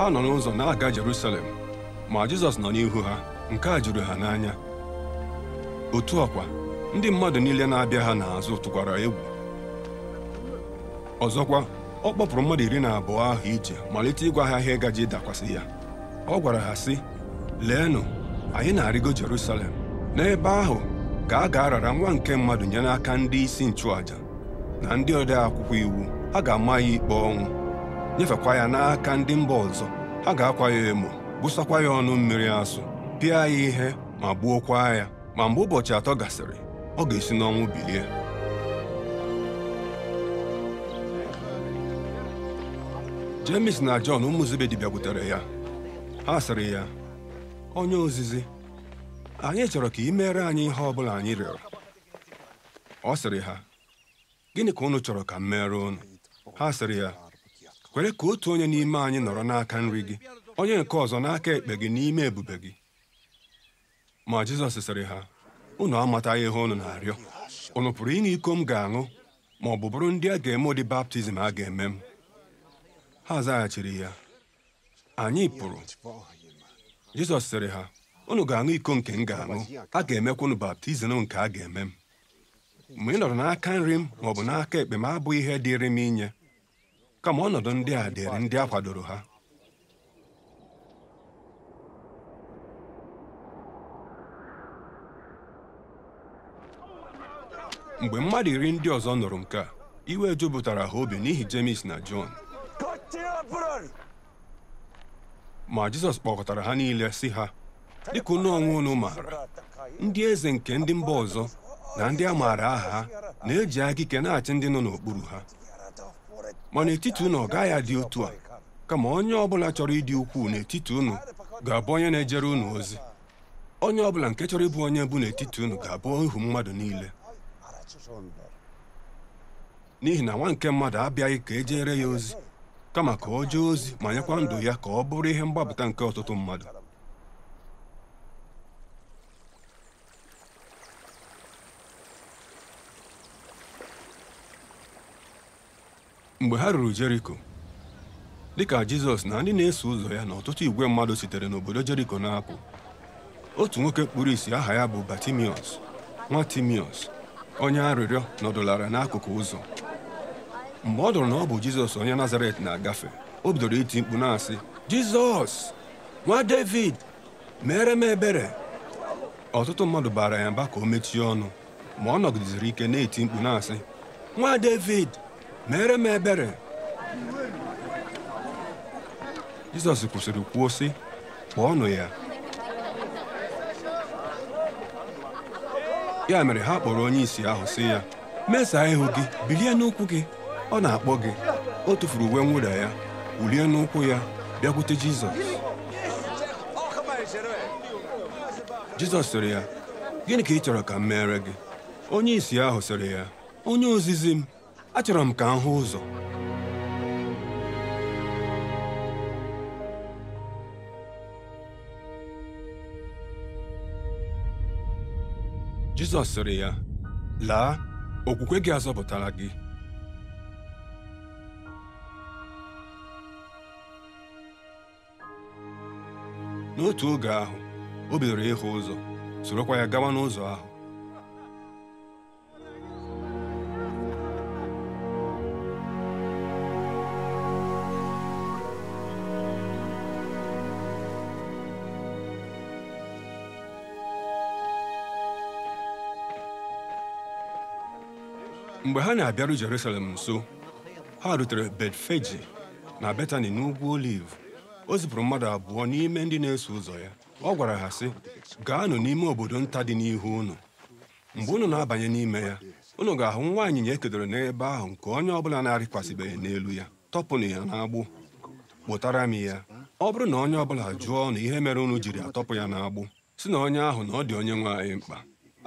ha nọ n'ụzọ na-aga Jerusalem ma Jizọs nọ n'ihu ha nke a juru ha n'anya otu ọkwa ndị mmadụ niile na-abịa ha n'azụ tụkwara egwu ọzọkwa ọ kpọpụrụ mmadụ iri na abụọ ahụ ije malite ịgwa ha ihe gaji dakwasị ya ọ gwara ha sị leenụ anyị na-arịgo Jerusalem n'ebe ahụ ka a ga-arara nwa nke mmadụ nye n'aka ndị isi nchụàjà na ndị ode akwụkwọ iwu ha ga-ama ya ikpe ọnwụ nyefekwa ya n'aka ndị mba ọzọ ha ga-akwa ya emo busakwa ya ọnụ mmiri asụ pịa ya ihe ma gbuokwa ya ma mgbe ụbọchị atọ gasịrị ọ ga-esi n'ọnwụ bilie jemis na John ụmụ Zebedi bịakwutere ya ha sịrị ya onye ozizi anyị chọrọ ka ị meere anyị ihe ọ bụla anyị rịọrọ ọ sịrị ha gịnị ka unu chọrọ ka m mere unu ha sịrị ya kwere ka otu onye n'ime anyị nọrọ n'aka nri gị onye nke ọzọ n'aka ekpe gị n'ime ebube gị ma Jizọs sịrị ha unu amataghị ihe unu na-arịọ unu pụrụ ịṅụ iko m ga-aṅụ ma ọ bụ bụrụ ndị a ga-eme ụdị baptizim a ga-eme m ha zaghachiri ya anyị pụrụ Jizọs sịrị ha unu ga-aṅụ iko nke m ga-aṅụ a ga-emekwa unu baptizim nke a ga-eme m mgbe ị nọrọ n'aka nri m ma ọ bụ n'aka ekpe m abụghị ihe dịrị m inye kama ọnọdụ ndị a dịrị ndị a kwadoro ha mgbe mmadụ iri ndị ọzọ nụrụ nke a iwe jupụtara ha obi n'ihi James na John ma Jizọs kpọkọtara ha niile si ha dịka unu onwe unu maara ndị eze nke ndị mba ọzọ na ndị a maara aha ha na-eji aka ike na-achị ndị nọ n'okpuru ha ma n'etiti ụnụ ọ gaghị adị otu a kama onye ọbụla chọrọ ịdị ukwuu n'etiti ụnụ ga-abụ onye na-ejere ụnụ ozi onye ọbụla nke chọrọ ịbụ onye bụ n'etiti ụnụ ga-abụ ihu mmadụ niile n'ihi na nwa nke mmadụ abịaghị ka e ya ozi kama ka o jee ozi ma nyekwa ndụ ya ka ọ bụrụ ihe mgbapụta nke ọtụtụ mmadụ mgbe ha ruru jeriko ka jizọs na ndị na-eso ụzọ ya na ọtụtụ igwe mmadụ sitere n'obodo jeriko na-apụ otu nwoke kpuru isi aha ya bụ batimiọs nwa timiọs onye arịrịọ nọdụlara n'akụkụ ụzọ mgbe ọ dụrụ na ọ bụ jizọs onye nazaret na-agafe o bidoro iti mkpu na-asị jizọs nwa david mere m ebere ọtụtụ mmadụ baara ya mba ka o mechie ọnụ ma ọ nọgideziri ike na-eti mkpu na-asị nwa david meere m ebere Jizọs kwụsịrị kwuo sị ọnụ ya ya mere ha kpọrọ onye isi ahụ sị ya mesaa ihu gị bilie n'ụkwụ gị ọ na-akpọ gị o tufuru uwe mwụda ya wulie n'ụkwụ ya bịakwute Jizọs Jizọs sịrị ya gịnị ka ị chọrọ ka m meere gị onye isi ahụ sịrị ya onye ozizi m achọrọ m ka m hụ ụzọ Jizọs sịrị ya laa okwukwe gị azọpụtara gị n'otu oge ahụ o bidoro ịhụ ụzọ sorokwa ya gawa n'ụzọ ahụ mgbe ha na-abịaru Jerusalem nso ha rutere Betfeji na Betani n'ugwu Oliv o zipụrụ mmadụ abụọ n'ime ndị na-eso ụzọ ya ọ gwara ha sị gaanụ n'ime obodo nta dị n'ihu unu mgbe unu na-abanye n'ime ya unu ga-ahụ nwa anyịnya ekedoro n'ebe ahụ nke onye ọbụla na-arịkwasịbeghị n'elu ya tọpụnụ ya n'agbụ kpụtara m ya ọ bụrụ na onye ọbụla jụọ na ihe mere unu jiri atọpụ ya n'agbụ si na onye ahụ na ọ dị onye nwe anyị mkpa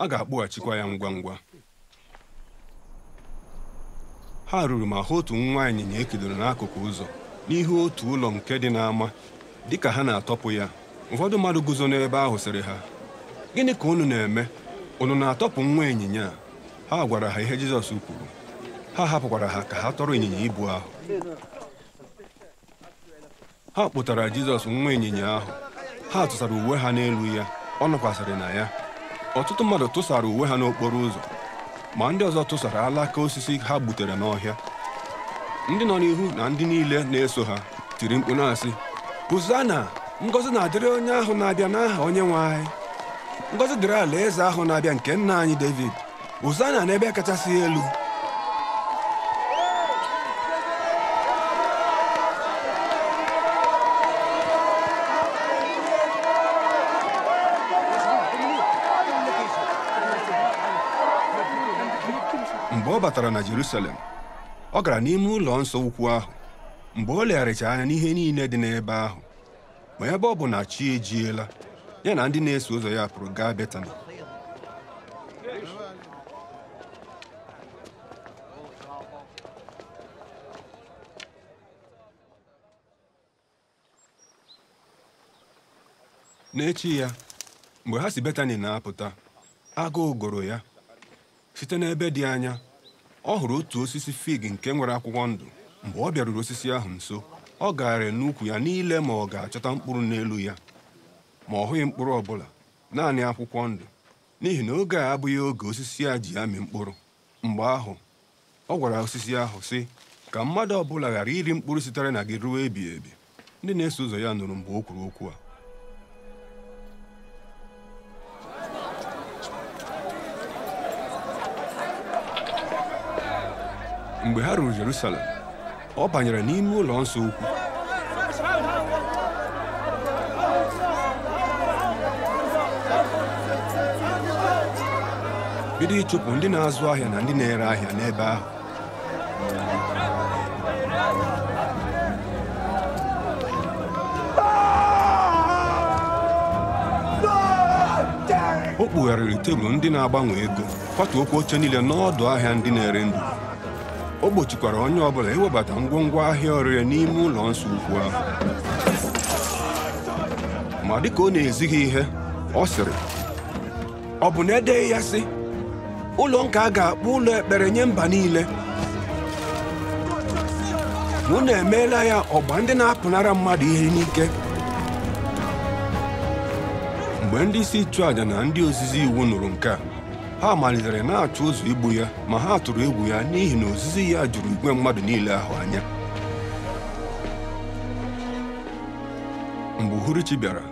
a ga-akpụghachikwa ya ngwa ngwa ha ruru ma hụ otu nwa ịnyịnya ekedoro n'akụkụ ụzọ n'ihu otu ụlọ nke dị n'ama ka ha na-atọpụ ya ụfọdụ mmadụ guzo n'ebe ahụ sịrị ha gịnị ka unu na-eme unu na-atọpụ nwa ịnyịnya ha gwara ha ihe Jizọs kwuru ha hapụkwara ha ka ha tọrọ ịnyịnya ibu ahụ ha kpụtara Jizọs nwa ịnyịnya ahụ ha tụsara uwe ha n'elu ya ọ nọkwasịrị na ya ọtụtụ mmadụ tụsara uwe ha n'okporo ụzọ ma ndị ọzọ tụsara alaka osisi ha gbutere n'ọhịa ndị nọ n'ihu na ndị niile na-eso ha tiri mkpu na-asị hụzana ngozi na-adịrị onye ahụ na-abịa n'aha onye nwe anyị ngozi dịrị ala eze ahụ na-abịa nke nna anyị david hụzana n'ebe kachasị elu mgbe ọ batara na Jerusalem ọ gara n'ime ụlọ nsọ ukwu ahụ mgbe ọ legharịcha anya n'ihe niile dị n'ebe ahụ ma ebe ọ bụ na chi ejiela ya na ndị na-eso ụzọ ya pụrụ gaa Betani n'echi ya mgbe ha si Betani na-apụta agụụ gụrụ ya site n'ebe dị anya ọ hụrụ otu osisi fig nke nwere akwụkwọ ndụ mgbe ọ bịaruru osisi ahụ nso ọ gaara n'ukwu ya niile ma ọ ga-achọta mkpụrụ n'elu ya ma ọ hụghị mkpụrụ ọbụla naanị akwụkwọ ndụ n'ihi na oge a abụghị oge osisi a ji amị mkpụrụ mgbe ahụ ọ gwara osisi ahụ sị ka mmadụ ọbụla ghara iri mkpụrụ sitere na gị ruo ebighị ebi ndị na-eso ụzọ ya nụrụ mgbe o kwuru okwu a mgbe ha ruru Jerusalem ọ banyere n'ime ụlọ nsọ ukwu bido ịchụpụ ndị na-azụ ahịa na ndị na-ere ahịa n'ebe ahụ o kpugharịrị tebụl ndị na-agbanwe ego okwu oche niile n'ọdụ ahịa ndị na-ere ndụ o gbochikwara onye ọbụla iwebata ngwongwo ahịa ọrịa n'ime ụlọ nsọ ukwu ahụ ma dịka ọ na-ezighị ihe ọ sịrị ọ bụ na edeghị ya sị ụlọ nka a ga-akpọ ụlọ ekpere nye mba niile na emeela ya ọgba ndị na-apụnara mmadụ ihe n'ike mgbe ndị isi ịchụ na ndị ozizi iwu nụrụ nke a ha malitere na achụ ụzọ igbu ya ma ha tụrụ egwu ya n'ihi na ozizi ya jụrụ igwe mmadụ niile ahụ anya mgbe uhuruchi bịara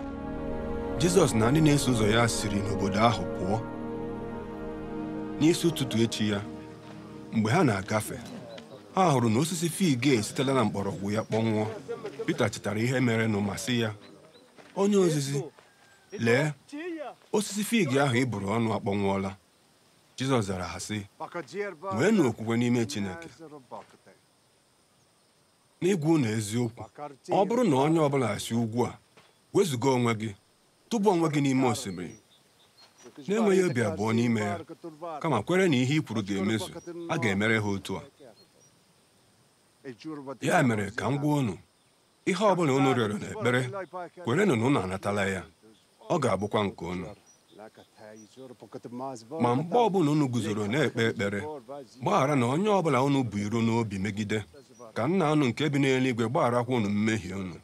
jizọs na ndị na-eso ụzọ ya siri n'obodo ahụ pụọ n'isi ụtụtụ echi ya mgbe ha na-agafe ha hụrụ na osisi fig esitela na mgbọrọgwụ ya kpọnwụọ Pita chetara ihe nụ ma sị ya onye ozizi lee osisi fig ahụ ị bụrụ ọnụ akpọnwụọla Jizọs zara ha sị nweenụ okwukwe n'ime Chineke n'ịgwa na eziokwu ọ bụrụ na onye ọbụla si ugwu a wezụga onwe gị tụba onwe gị n'ime osimiri na-enweghị obi abụọ n'ime ya kama kwere na ihe i kwuru ga-emezu a ga-emere ha otu a ya mere ka m gwa unu ihe ọ bụla unu rịọrọ n'ekpere kwerenụ na unu anatala ya ọ ga-abụkwa nke unu ma mgbe ọbụla unu guzoro na-ekpe ekpere gbaghara na onye ọbụla unu bụ iro n'obi megide ka nna unu nke bi n'eluigwe gbaghara gbagharakwa unu mmehie unu